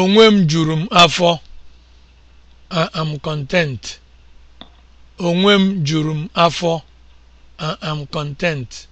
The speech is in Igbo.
Onwe m juru m afọ. a am content. am content.